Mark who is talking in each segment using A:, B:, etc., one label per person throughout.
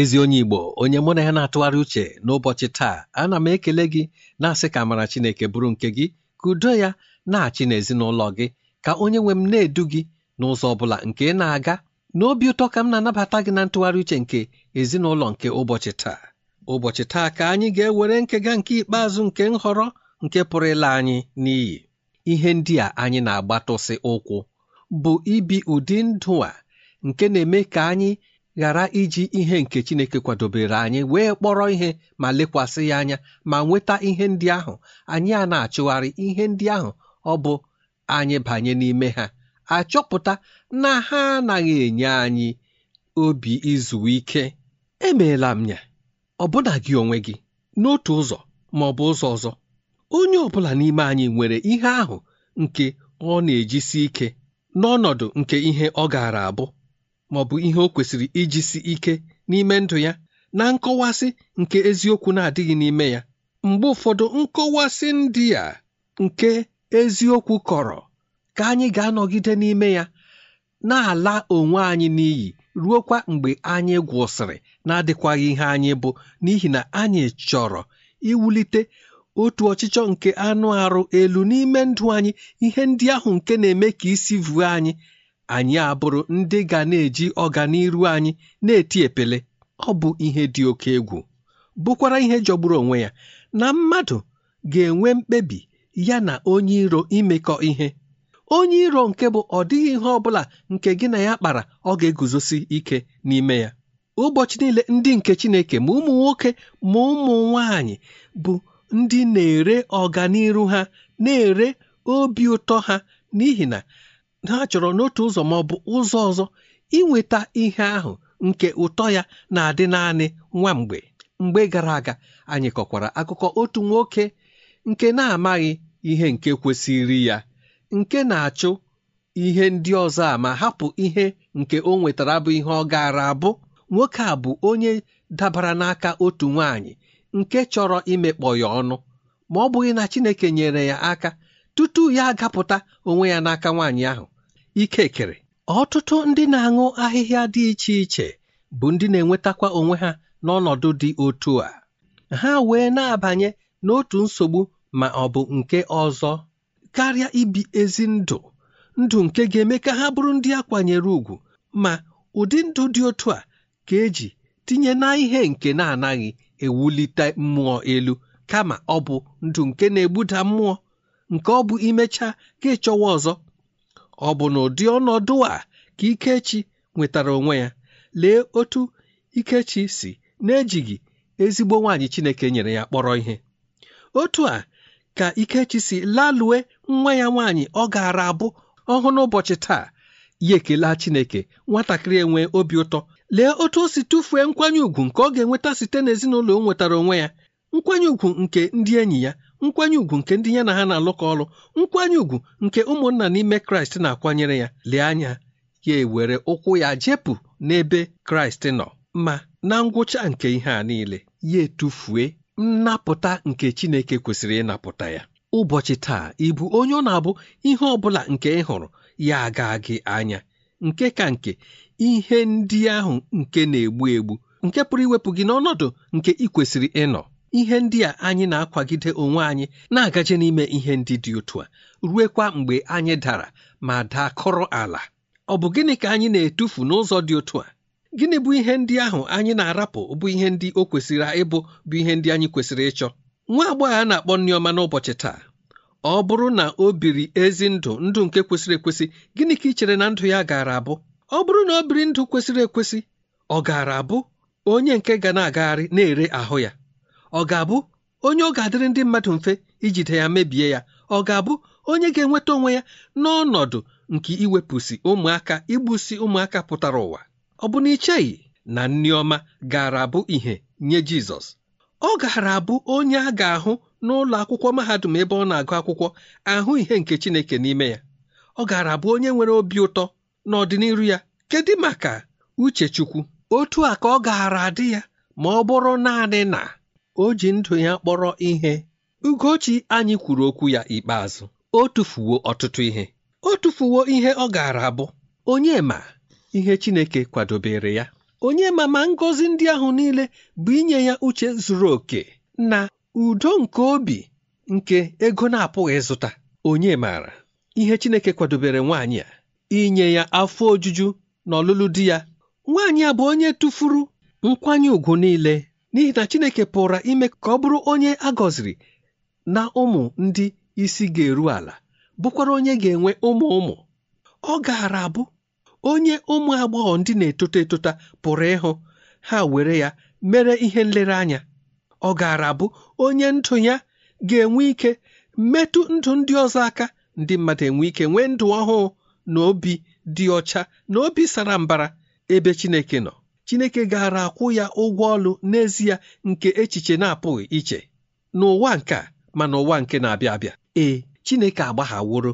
A: ezi onye Igbo onye mụ na ya na-atụgharị uche n'ụbọchị taa ana m ekele gị na-asị ka amara Chineke bụrụ nke gị ka udo ya na-achị n'ezinụlọ gị ka onye nwe m na-edu gị n'ụzọ ọ bụla nke na-aga n'obi ụtọ ka m na-anabata gị na ntụgharị uche nke ezinụlọ nke ụbọchị taa ụbọchị taa ka anyị ga-ewere nkega nke ikpeazụ nke nhọrọ nke pụrụ ịla anyị n'iyi ihe ndị a anyị na-agbatụsị ụkwụ bụ ibi ụdị ndụ a nke na-eme ka anyị ghara iji ihe nke Chineke kwadobere anyị wee kpọrọ ihe ma lekwasị ya anya ma nweta ihe ndị ahụ anyị a na-achụgharị ihe ndị ahụ ọ bụ anyị banye n'ime ha achọpụta na ha anaghị enye anyị obi izu ike emeela m ya ọbụna gị onwe gị n'otu ụzọ ma ọ bụ ụzọ ọzọ onye ọ bụla n'ime anyị nwere ihe ahụ nke ọ na-ejisi ike n'ọnọdụ nke ihe ọ gaara abụ ma bụ ihe o kwesịrị ijisi ike n'ime ndụ ya na nkọwasị nke eziokwu na-adịghị n'ime ya mgbe ụfọdụ nkọwasị ndị a nke eziokwu kọrọ ka anyị ga-anọgide n'ime ya na-ala onwe anyị n'iyi ruokwa mgbe anyị gwụsịrị na-adịkwaghị ihe anyị bụ n'ihi na anyị chọrọ iwulite otu ọchịchọ nke anụ arụ elu n'ime ndụ anyị ihe ndị ahụ nke na-eme ka isi vuo anyị anyị abụrụ ndị ga na-eji ọganiru anyị na-eti epele ọ bụ ihe dị oke egwu bụkwara ihe jọgburu onwe ya na mmadụ ga-enwe mkpebi ya na onye iro imekọ ihe onye iro nke bụ ọ dịghị ihe ọ bụla nke gị na ya kpara ọ ga-eguzosi ike n'ime ya ụbọchị niile ndị nke Chineke ma ụmụ nwoke ma ụmụ nwanyị bụ ndị na-ere ọganiru ha na-ere obi ụtọ ha n'ihi na ha chọrọ n'otu ụzọ ma ọ bụ ụzọ ọzọ inweta ihe ahụ nke ụtọ ya na-adị naanị nwa mgbe mgbe gara aga anyị kọkwara akụkọ otu nwoke nke na-amaghị ihe nke kwesịrị ya nke na-achụ ihe ndị ọzọ a ma hapụ ihe nke o nwetara bụ ihe ọ gaara abụ nwoke a bụ onye dabara n'aka otu nwaanyị nke chọrọ imekpọ ya ọnụ ma ọ bụghị na Chineke nyere ya aka tutu ya agapụta onwe ya n'aka nwaanyị ahụ ikekere ọtụtụ ndị na-aṅụ ahịhịa dị iche iche bụ ndị na-enwetakwa onwe ha n'ọnọdụ dị otu a ha wee na-abanye n'otu nsogbu ma ọ bụ nke ọzọ karịa ibi ezi ndụ ndụ nke ga-eme ka ha bụrụ ndị a kwanyere ùgwù ma ụdị ndụ dị otu a ka eji tinye na ihe nke na-anaghị ewulite mmụọ elu kama ọ bụ ndụ nke na-egbuda mmụọ nke ọ bụ imecha ka ịchọwa ọzọ ọ bụ na ụdị ọnọdụ a ka Ikechi nwetara onwe ya lee otu Ikechi si na-ejighị ezigbo nwaanyị Chineke nyere ya kpọrọ ihe otu a ka Ikechi si lalue nwa ya nwaanyị ọ gaara abụ ọhụụ n'ụbọchị taa ya ekelaa Chineke nwatakịrị enwe obi ụtọ lee otu o si tụfuo nkwanye ùgwù nke ọ ga-enweta site n'ezinụlọ o nwetara onwe ya nkwanye ùgwù nke ndị enyi ya nkwanye ùgwù nke ndị ya na ha na-alụkọ ọrụ nkwanye ùgwù nke ụmụnna n'ime kraịst na-akwanyere ya lee anya ya ewere ụkwụ ya jepụ n'ebe kraịst nọ ma na ngwụcha nke ihe a niile ya etufue nnapụta nke chineke kwesịrị ịnapụta ya ụbọchị taa ịbụ onye ọ na-abụ ihe ọ bụla nke ị hụrụ ya aga gị anya nke ka nke ihe ndị ahụ nke na-egbu egbu nke pụrụ iwepụ gị n'ọnọdụ nke ị kwesịrị ịnọ ihe ndị a anyị na-akwagide onwe anyị na-agaje n'ime ihe ndị dị otu a ruekwa mgbe anyị dara ma dakọrọ ala ọ bụ gịnị ka anyị na-etufu n'ụzọ dị otu a gịnị bụ ihe ndị ahụ anyị na-arapụ bụ ihe ndị o kwesịrị ịbụ bụ ihe ndị anyị kwesịrị ịchọ nwa agbọghọ a na-akpọ nneọma n'ụbọchị taa ọ bụrụ na o biri ezi ndụ ndụ nke kwesịrị ekwesị gịnị ka ị chere na ndụ ya gaara abụ ọ bụrụ na o biri ndụ kwesịrị ekwesị ọ gaara abụ onye nke ga na-agagharị na-ere ahụ ya ọ ga-abụ onye ọ ga-adịrị ndị mmadụ mfe ijide ya mebie ya ọ ga-abụ onye ga-enweta onwe ya n'ọnọdụ nke iwepụsị ụmụaka igbusi ụmụaka pụtara ụwa ọ bụ na icheghị na Nneọma ọma gara abụ ihe nye Jizọs ọ gara abụ onye a ga-ahụ n'ụlọ akwụkwọ mahadum ebe ọ na-agụ akwụkwọ ahụ ihe nke Chineke n'ime ya ọ gara abụ onye nwere obi ụtọ n'ọdịnihu ya kedu maka Uchechukwu otu a ka ọ gaara adị ya ma ọ bụrụ naanị na o ji ndụ ya kpọrọ ihe ugochi anyị kwuru okwu ya ikpeazụ o tufuwo ọtụtụ ihe o tufuwo ihe ọ gaara abụ onye ma ihe chineke kwadobere ya onye ma ma ngọzi ndị ahụ niile bụ inye ya uche zuru oke na udo nke obi nke ego na-apụghị zụta onye maara ihe chineke kwadobere nwaanyị a inye ya afọ ojuju na ọlụlụ di ya nwaanyị a bụ onye tụfuru nkwanye ùgwù niile n'ihi na Chineke pụrụ ime ka ọ bụrụ onye a gọziri na ụmụ ndị isi ga-eru ala bụkwara onye ga-enwe ụmụ ụmụ ọ gaara abụ onye ụmụ agbọghọ ndị na-etota etota pụrụ ịhụ ha were ya mere ihe nlereanya ọ gaara abụ onye ndụ ya ga-enwe ike metụ ndụ ndị ọzọ aka ndị mmadụ enwe ike nwee ndụ ọhụụ na obi dị ọcha na obi sara mbara ebe Chineke nọ chineke gaara akwụ ya ụgwọ ọlụ n'ezie nke echiche na-apụghị iche n'ụwa nke a ma n'ụwa nke na-abịa abịa ee chineke agbaghaworo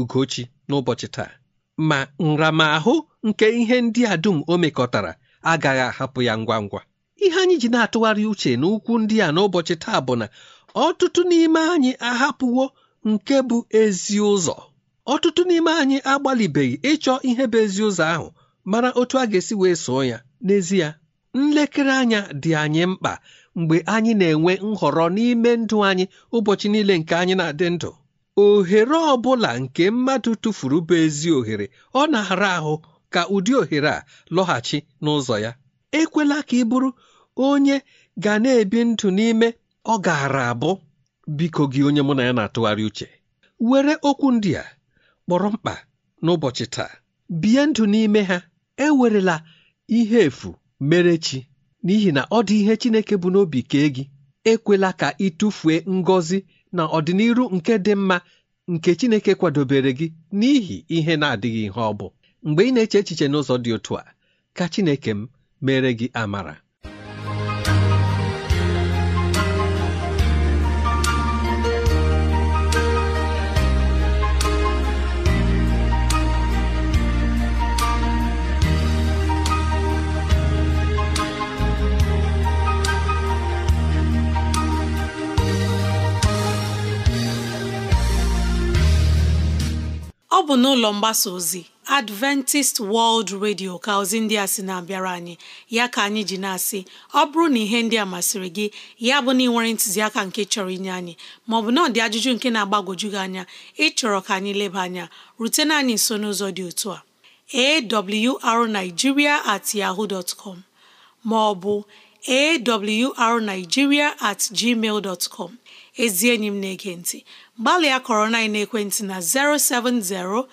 A: ugochi n'ụbọchị taa ma nramahụ nke ihe ndị a dum o mekọtara agaghị ahapụ ya ngwa ngwa ihe anyị ji na-atụgharị uche n'ukwu ndị a n'ụbọchị taa bụ na ọtụtụ n'ime anyị ahapụwo nke bụ ezi ụzọ ọtụtụ n'ime anyị agbalịbeghị ịchọ ihe bụ ezi ụzọ ahụ mara otu a ga-esi wee soo ya N'ezie, nlekere anya dị anyị mkpa mgbe anyị na-enwe nhọrọ n'ime ndụ anyị ụbọchị niile nke anyị na-adị ndụ ohere ọ bụla nke mmadụ tụfuru bụ ezi ohere ọ na-ara ahụ ka ụdị ohere a lọghachi n'ụzọ ya ekwela ka ị bụrụ onye ga na-ebi ndụ n'ime ọ gaara abụ biko gị onye mụ na ya na-atụgharị uche were okwu ndị a kpọrọ mkpa n'ụbọchị taa bie ndụ n'ime ha ewerela ihe efu mere chi n'ihi na ọ dị ihe Chineke bụ n'obi kee gị ekwela ka ị ngọzi na ọdịnihu nke dị mma nke Chineke kwadobere gị n'ihi ihe na-adịghị ihe ọ bụ mgbe ị na-eche echiche n'ụzọ dị otu a ka Chineke m mere gị amara
B: Ọ bụ n'ụlọ mgbasa ozi Adventist World Radio ka ozi ndị a si na-abịara anyị ya ka anyị ji na-asị ọ bụrụ na ihe ndị a masịrị gị ya bụ na ị nwere ntụziaka nke chọrọ inye anyị maọbụ na ọ dị ajụjụ nke na-agbagwoju gị anya ịchọrọ ka anyị leba anya rutena anyị nso n'ụzọ dị otu a awrnigeria at yaho dot maọbụ awrnigeria at gmail dot com ezi enyi m na-ege ntị gbalịa kọrọ na ekwentị na 07063637224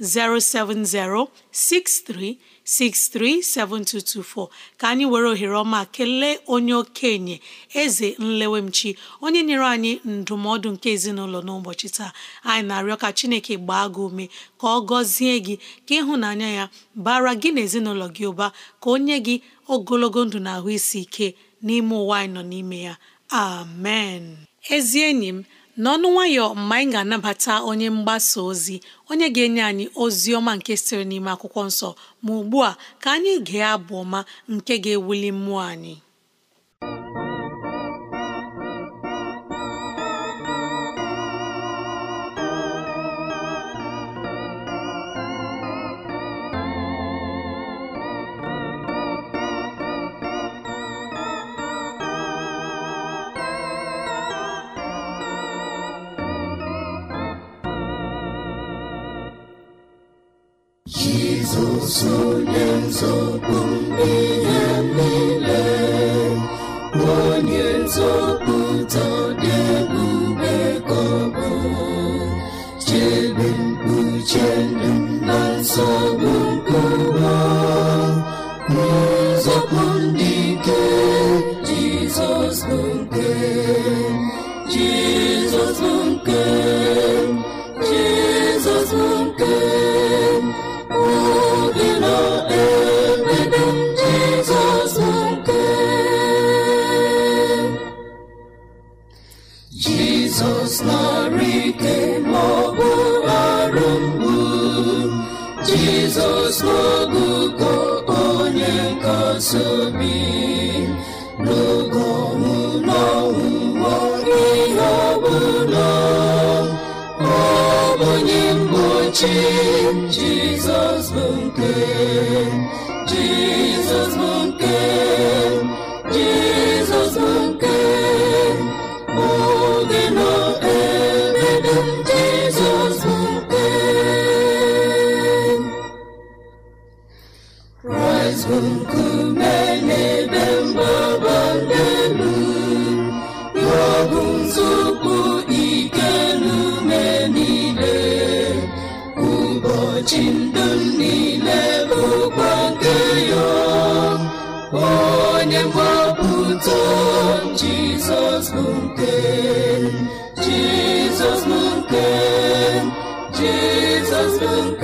B: 07063 637224 ka anyị were ohere ọma kelee onye okenye eze nlewemchi onye nyere anyị ndụmọdụ nke ezinụlọ n'ụbọchị taa anyị na-arịọ ka chineke gbaa gị ume ka ọ gọzie gị ka ịhụnanya ya bara gị na ezinụlọ gị ụba ka o nye gị ogologo ndụ na ahụ isi ike n'ime ụwa anyị nọ n'ime ya amen ezi enyi m n'ọnụ nwayọ mgbe anyị ga-anabata onye mgbasa ozi onye ga-enye anyị ozi ọma nke siri n'ime akwụkwọ nsọ ma ugbu a ka anyị gee abụ ọma nke ga-ewuli mmụọ anyị
C: Jizọs onye nzọpụ ihe niile onye nzọpụ jizọs narị ike maọbụ arụ mgbu jizọs n'ọgụgụ onye nkasiobi n'oge ọnwụ n'ọnwụwa ihe ọbụla ọ onye mgbochi jizọs bụ nke jizọs bụ nke Jizọs jesus nke jesus jesus jesus Jizọs jesus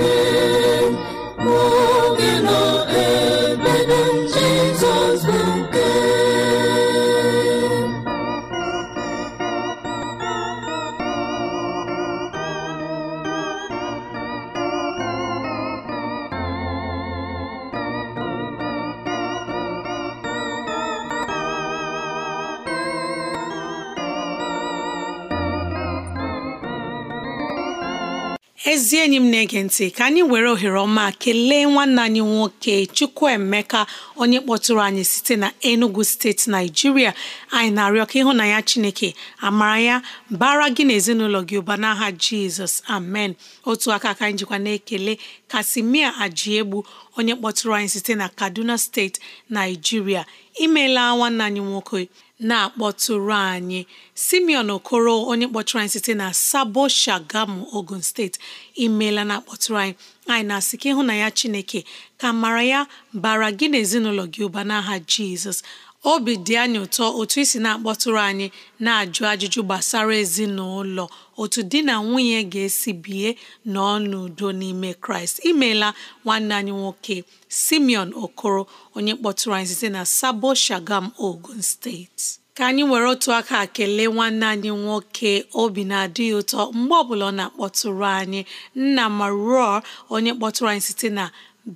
B: ntị ka anyị were ohere ọma kelee nwanne anyị nwoke Chukwuemeka onye kpọtụrụ anyị site na Enugu steeti Naijiria anyị na-arịọ ka ya Chineke amara ya bara gị na ezinụlọ gị ụba n'aha Jizọs amen otu aka ka anyị jikwa na-ekele Kasimia Ajiegbu onye kpọtụrụ anyị site na Kaduna steeti Naijiria imeela nwanne anyị nwoke na-akpọtụrụ anyị simeon okoro onye kpọtụrụ anyị site na sabo shagamu ogun steeti imeela na-akpọtụrụ anyị anyị na-asị na ya chineke ka mara ya bara gị na ezinụlọ gị ụba n'aha jizọs obi dị anyị ụtọ otu isi na-akpọtụrụ anyị na-ajụ ajụjụ gbasara ezinụlọ otu di na nwunye ga-esi bie n'ọnụ n'udo n'ime kraịst imeela nwanne anyị nwoke simeon okoro onye kpọtụrụ anyị site na sabo shagam ogun steeti ka anyị were otu aka kelee nwanne anyị nwoke obi na-adịghị ụtọ mgbe ọbụla ọ na-akpọtụrụ anyị nna maruo onye kpọtụrụ anyị site na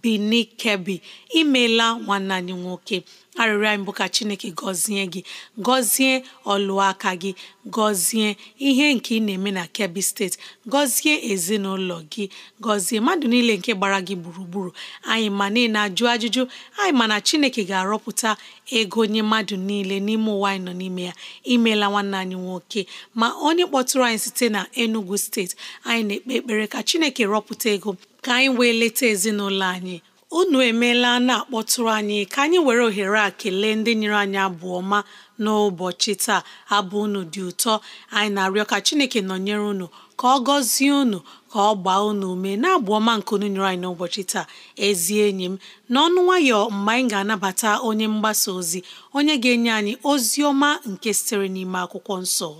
B: Bini Kebi imeela nwanne anyị nwoke arịrịọ anyị bụ ka chineke gọzie gị gọzie ọlụaka gị gọzie ihe nke ị na-eme na kebbi steeti gọzie ezinụlọ gị gọzie mmadụ niile nke gbara gị gburugburu anyị ma niile ajụ ajụjụ anyị ma na chineke ga-arọpụta ego nye mmadụ niile n'ime ụwa anyị nọ n'ime ya imeela nwanne anyị nwoke ma onye kpọtụrụ anyị site na enugu steeti anyị na-ekpe ekpere ka chineke rọpụta ego ka anyị wee leta ezinụlọ anyị unu emeela na-akpọtụrụ anyị ka anyị were ohere a kelee ndị nyere anyị abụ ọma n'ụbọchị taa abụ unu dị ụtọ anyị na-arịọ ka Chineke nọnyere unu ka ọ gọzie unu ka ọ gbaa unu ume na-abụ ọma nke unu nyere anyị n'ụbọchị taa ezi enyi m n'ọnụ nwayọ mgbe anyị ga-anabata onye mgbasa ozi onye ga-enye anyị ozi ọma nke sitere n'ime akwụkwọ nsọ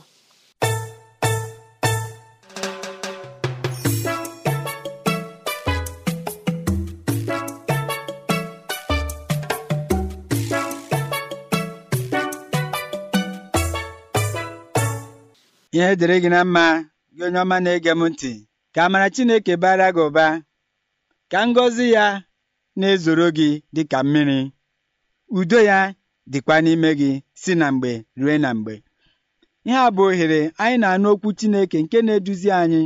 D: ihe dịrị gị na mma gị onye ọma na-ege m ntị ka amara Chineke bara gị ụba ka ngozi ya na-ezoro gị dị ka mmiri udo ya dịkwa n'ime gị si na mgbe rue na mgbe ihe a bụ ohere anyị na-anụ okwu Chineke nke na-eduzi anyị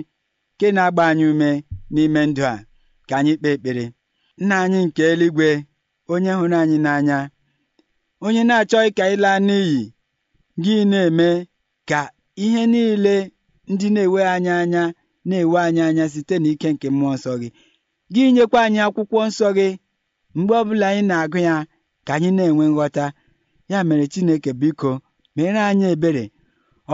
D: nke na-agba anyị ume n'ime ndụ a ka anyị kpee ekpere nna anyị nke eluigwe onye hụrụ anyị n'anya onye na-achọghị ka anyị n'iyi gị na-eme ka ihe niile ndị na ewe anyị anya na-enwe anyị anya site n'ike nke mmụọ nsọ gị gị nyekwa anyị akwụkwọ nsọ gị mgbe ọbụla anyị na-agụ ya ka anyị na-enwe nghọta ya mere Chineke biko mere anyị ebere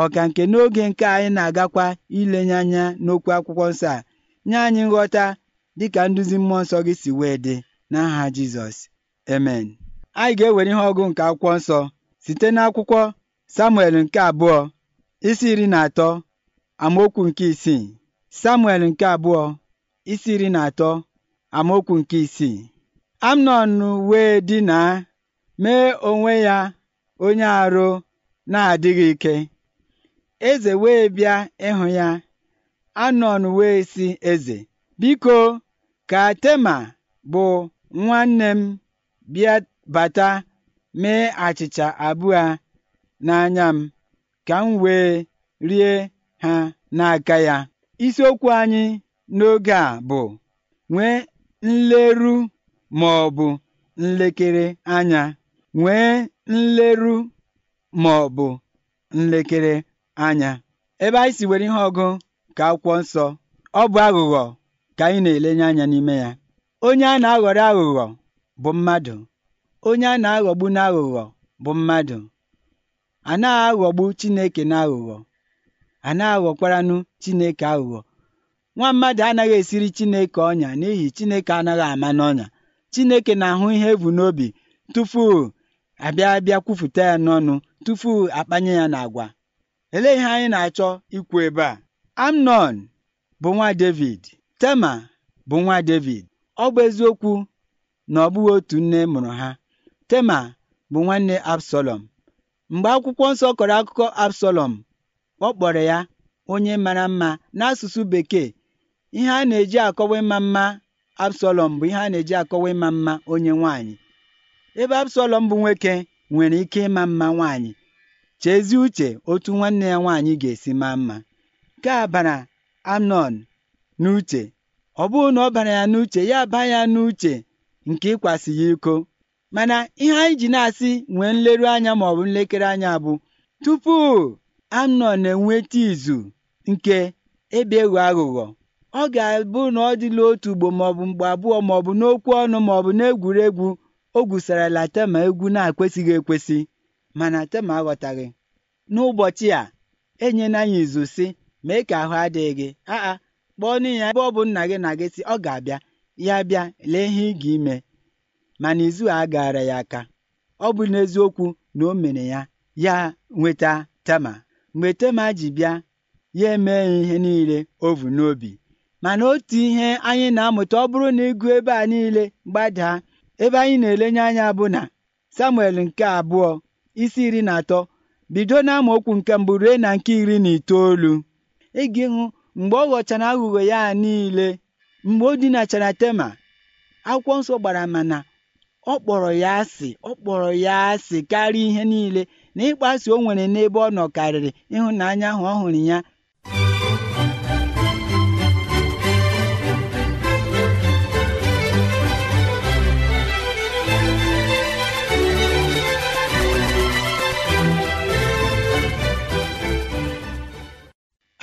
D: ọka nke n'oge nke anyị na-agakwa ilenye anya n'okwu akwụkwọ nsọ a nye anyị nghọta dịka nduzi mmụọ nsọ gị si wee dị n'aha Jizọs amen anyị ga-ewere ihe ọgụ nke akwụkwọ nsọ site n'akwụkwọ Samuel nke abụọ isi iri na atọ amaokwu nke isii Samuel nke abụọ isi iri na atọ amaokwu nke isii Amnọn wee dinaa mee onwe ya onye arụ na-adịghị ike eze wee bịa ịhụ ya Amnọn wee sị eze biko ka Tema bụ nwanne m bịa bata mee achịcha abụọ n'anya m ka m wee rie ha n'aka ya isiokwu anyị n'oge a bụ nwee nleru ma ọ bụ nlekere anya nwee nleru ma ọ bụ nlekere anya ebe anyị si were ihe ọgụ ka akwụkwọ nsọ ọ bụ aghụghọ ka anyị na-elenye anya n'ime ya onye a na-aghọrọ aghụghọ bụ mmadụ onye a na-aghọgbu n'aghụghọ bụ mmadụ a na aghọgbu Chineke n'aghụghọ a na aghọkwaranụ Chineke aghụghọ nwa mmadụ anaghị esiri Chineke ọnya n'ihi Chineke anaghị ama n'ọnya Chineke na-ahụ ihe ebu n'obi tupu abịa bịa ya n'ọnụ tupu akpanye ya n'agwa elee ihe anyị na-achọ ikwu ebe a Amnon bụ nwa David Tema bụ nwa David ọ bụ eziokwu na ọ bụghị otu nne mụrụ ha Tema bụ nwanne Absalom Mgbe Akwụkwọ Nsọ kọrọ akụkọ Absalọm, ọ kpọrọ ya “onye mara mma” n'asụsụ Bekee. Ihe a na-eji akọwa ịma mma Absalọm bụ ihe a na-eji akọwa ịma mma onye nwaanyị, ebe Absalọm bụ nwoke nwere ike ịma mma nwaanyị. Chezie uche otu nwanne ya nwaanyị ga-esi maa mma. Nke a bara n'uche. Ọ bụghị na ọ bara ya n'uche, ya aba ya n'uche nke ịkwasị ya iko mana ihe anyị ji na-asị nwee nleru anya maọbụ nlekere anya bụ tupu na enweta izu nke ebe ịghọ aghụghọ ọ ga-abụ na ọ dịla otu ugbo maọbụ mgbe abụọ maọbụ n'okwu ọnụ maọbụ n'egwuregwu o gwusarala tema egwu na-akwesịghị ekwesị mana tema aghọtaghị n'ụbọchị a enyela anya izu si mee ka ahụ adịghị gị aa kpọọ n'ihi ya ebe ọ bụ nna gị na gị si ọ ga-abịa ya bịa lee ihe ị ga-ime mana izu a gaara ya aka ọ bụ n'eziokwu na o mere ya ya nweta tema mgbe tema ji bịa ya emee ihe niile ovu n'obi mana otu ihe anyị na-amụta ọ bụrụ na ịgụ ebe a niile gbadaa ebe anyị na-elenye anya bụ na samuel nke abụọ isi iri na atọ bido na okwu nke mbụ rue na nke iri na itoolu ịga ịhụ mgbe ọ ghọchara aghụghọ ya niile mgbe o dinachara tema akwụkwọ nsọ gbara mana ọ kpọrọ ya asị ọ kpọrọ ya asị karịa ihe niile na ịkpaso o nwere n'ebe ọ nọkarịrị ịhụnanya ahụ ọ hụrụ ya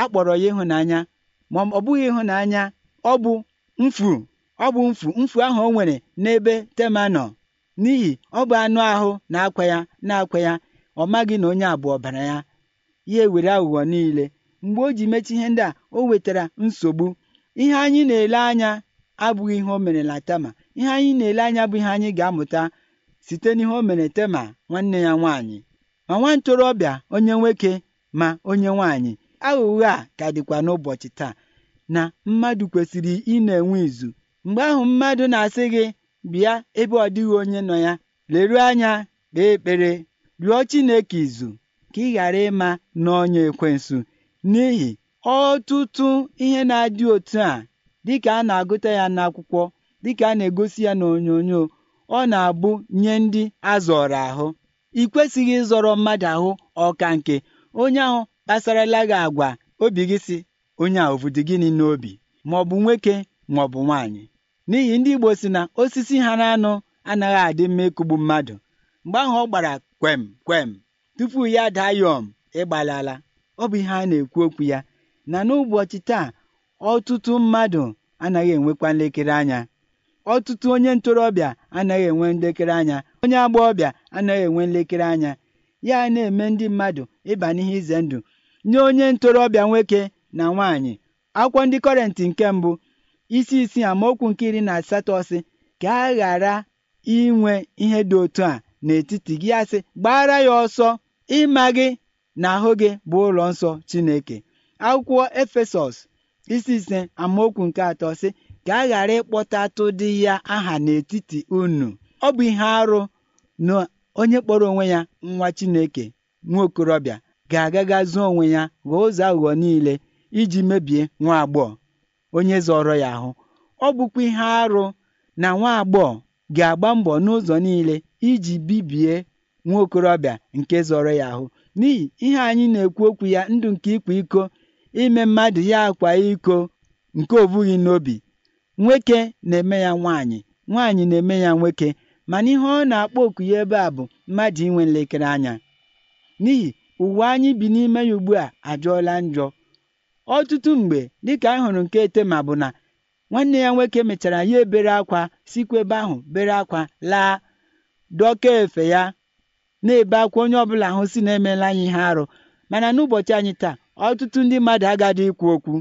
D: a kpọrọ ya ịhụnanya ma ọ bụghị ịhụnanya ọ bụ mfu ọ bụ mfu mfu ahụ o nwere n'ebe tema nọ n'ihi ọ bụ anụ ahụ na-akwa ya na-akwa ya ọ maghị na onye abụọ bara ọbara ya ya ewere aghụghọ niile mgbe o ji mechi ihe ndị a o wetara nsogbu ihe anyị na-ele anya abụghị ihe o mere na Tema ihe anyị na-ele anya bụ ihe anyị ga-amụta site n'ihe o mere Tema nwanne ya nwaanyị ma nwa ntorobịa onye nwoke ma onye nwaanyị aghụghọ a ka dịkwa n'ụbọchị taa na mmadụ kwesịrị ị na-enwe izu mgbe ahụ mmadụ na-asị gị bịa ebe ọ dịghị onye nọ ya leruo anya kpee ekpere rịọ Chineke izu ka ị ghara ịma n'ọnya ekwensu n'ihi ọtụtụ ihe na-adị otu a dịka a na-agụta ya n'akwụkwọ dịka a na-egosi ya n'onyonyo ọ na-abụ nye ndị azọrọ ahụ ị kwesịghị ịzọrọ mmadụ ahụ ọka nke onye ahụ kpasarala gị agwa obi gị si onye a ovudi gịnị n'obi ma ọ bụ nwoke ma ọ bụ nwaanyị n'ihi ndị igbo si na osisi ha na anụ anaghị adị mma ịkụgbu mmadụ mgbe ahụ ọ gbara kwem kwem tupu ya dayom ịgbalala ọ bụ ihe a na-ekwu okwu ya na n'ụbọchị taa ọtụtụ mmadụ anaghị enwekwa nlekere anya ọtụtụ onye ntorobịa anaghị enwe nlekere anya onye agbọghọbịa anaghị enwe nlekere anya ya na-eme ndị mmadụ ịba n'ihe ize ndụ nye onye ntorobịa nwoke na nwaanyị akwụkwọ ndị kọrentị nke mbụ isi isi amaokwu nke iri na asatọ sị ka a ghara inwe ihe dị otu a n'etiti gị asị gbara ya ọsọ ịma gị na ahụ gị bụ ụlọ nsọ Chineke akwụkwọ Efesọs isi ise amaokwu nke atọ sị ka a ghara ịkpọtatụ dị ya aha n'etiti unu ọ bụ ihe arụ na onye kpọrọ onwe ya nwa Chineke nwa okorobịa ga-agaga zuo onwe ya ghọọ ụzọ aghụghọ niile iji mebie nwa agbọghọ onye zọrọ ya ahụ ọ bụkwa ihe arụ na nwa agbọghọ ga-agba mbọ n'ụzọ niile iji bibie nwa okorobịa nke zọrọ ya ahụ n'ihi ihe anyị na-ekwu okwu ya ndụ nke ịkwa iko ime mmadụ ya akwa iko nke obughị n'obi nwoke na-eme ya nwaanyị nwaanyị na-eme ya nwoke mana ihe ọ na-akpọ oku ya ebe a bụ mmadụ inwe nlekere anya n'ihi ụwa anyị bi n'ime ya ugbu a ajụọla njọ ọtụtụ mgbe dịka anyị hụrụ nke etema bụ na nwanne ya nwoke mechara ya ebere akwa sikwa ebe ahụ bere akwa laa dọka efe ya na-ebe akwa onye ọbụla ahụ si na emela anyị ihe arụ mana n'ụbọchị anyị taa ọtụtụ ndị mmadụ agadị ikwu okwu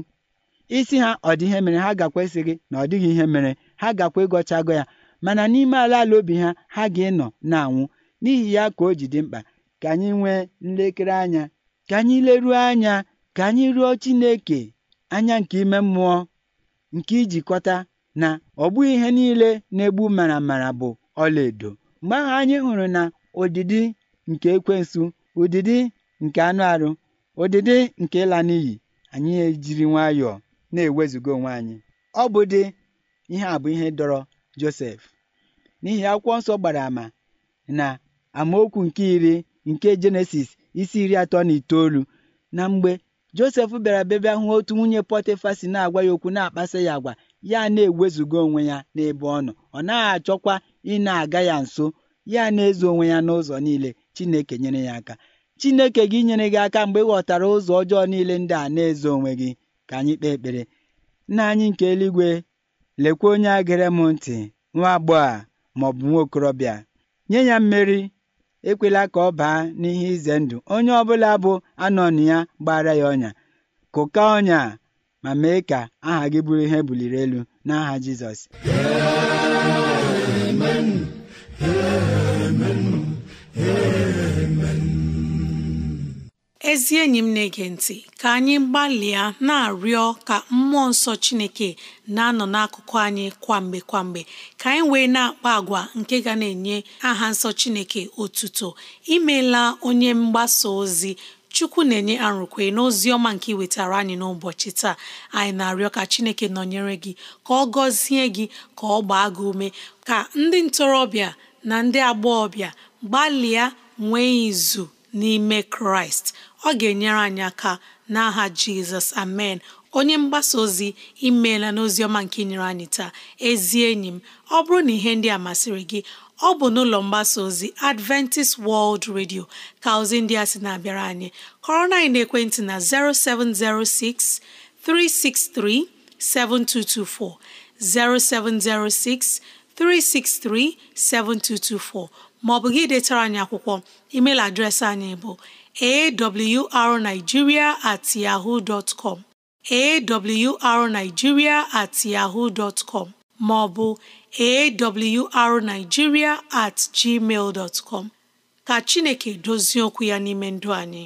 D: isi ha ọ dị ihe mere ha gakwa esighị na ọ dịghị ihe mere ha gakwa ịgọchago ya mana n'ime ala ala obi ha ha ga-ịnọ na-anwụ n'ihi ya ka o ji dị mkpa ka anyị nwee nlekere anya ka anyị leruo anya ka anyị rịọ Chineke anya nke ime mmụọ nke ijikọta na ọ bụghị ihe niile na-egbu maramara bụ ọlaedo mgbe ahụ anyị hụrụ na ụdịdị nke ekwensu ụdịdị nke anụ arụ ụdịdị nke ịla n'iyi anyị ejiri nwayọọ na ewezugo onwe anyị ọ bụ dị ihe a bụ ihe dọrọ Josef n'ihi akwụkwọ nsọ gbara àmà na amaokwu nke iri nke Jenesis isi iri atọ na itoolu na mgbe Josef bịara bebe ahụ otu nwunye Pọtịfa si na-agwa ya okwu na-akpasa ya agwa ya na-ewezuga onwe ya n'ebe ọ nọ ọ naghị achọkwa ị na-aga ya nso ya na-ezo onwe ya n'ụzọ niile Chineke nyere ya aka Chineke gị nyere gị aka mgbe ị ghọtara ụzọ ọjọọ niile ndị a na-ezo onwe gị ka anyị kpee ekpere nna anyị nke eluigwe lekwa onye a gere m ntị nwa agbọghọ ma ọ bụ nwa okorobịa nye ya mmeri ekwela ka ọ baa n'ihe ize ndụ onye ọbụla bụ anọnụ ya gbara ya ọnya kụka ọnya ma mee ka aha gị bụrụ ihe buliri elu n'aha Jizọs
B: ezi enyi m na-ege ntị ka anyị gbalịa na-arịọ ka mmụọ nsọ Chineke na-anọ n'akụkụ anyị kwamgbe kwamgbe ka anyị wee na-akpa agwa nke ga na-enye aha nsọ Chineke otuto Imela onye mgbasa ozi Chukwu na-enye arụkwe n'ozi ọma nke wetara anyị n'ụbọchị taa anyị na-arịọ ka Chineke nọnyere gị ka ọ gọzie gị ka ọ gbaa gị ume ka ndị ntorobịa na ndị agbọghọbịa gbalịa nwee izu n'ime Kraịst ọ ga-enyere anyị aka n'aha jizọs amen onye mgbasa ozi imeela n'ozi ọma nke nyere anyị taa ezi enyi m ọ bụrụ na ihe ndị a masịrị gị ọ bụ n'ụlọ mgbasa ozi adventist world radio ka ozi ndị a sị na-abịara anyị kọrọ na ekwentị na 0706 07063637224. maọbụ gị detara anyị akwụkwọ email adreesị anyị bụ awrnigeria at yahoo dot com awrnigeria at yahoo dot com ma awrnigeria at gmail dot ka Chineke dozie okwu ya n'ime ndụ anyị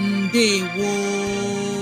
B: ndewo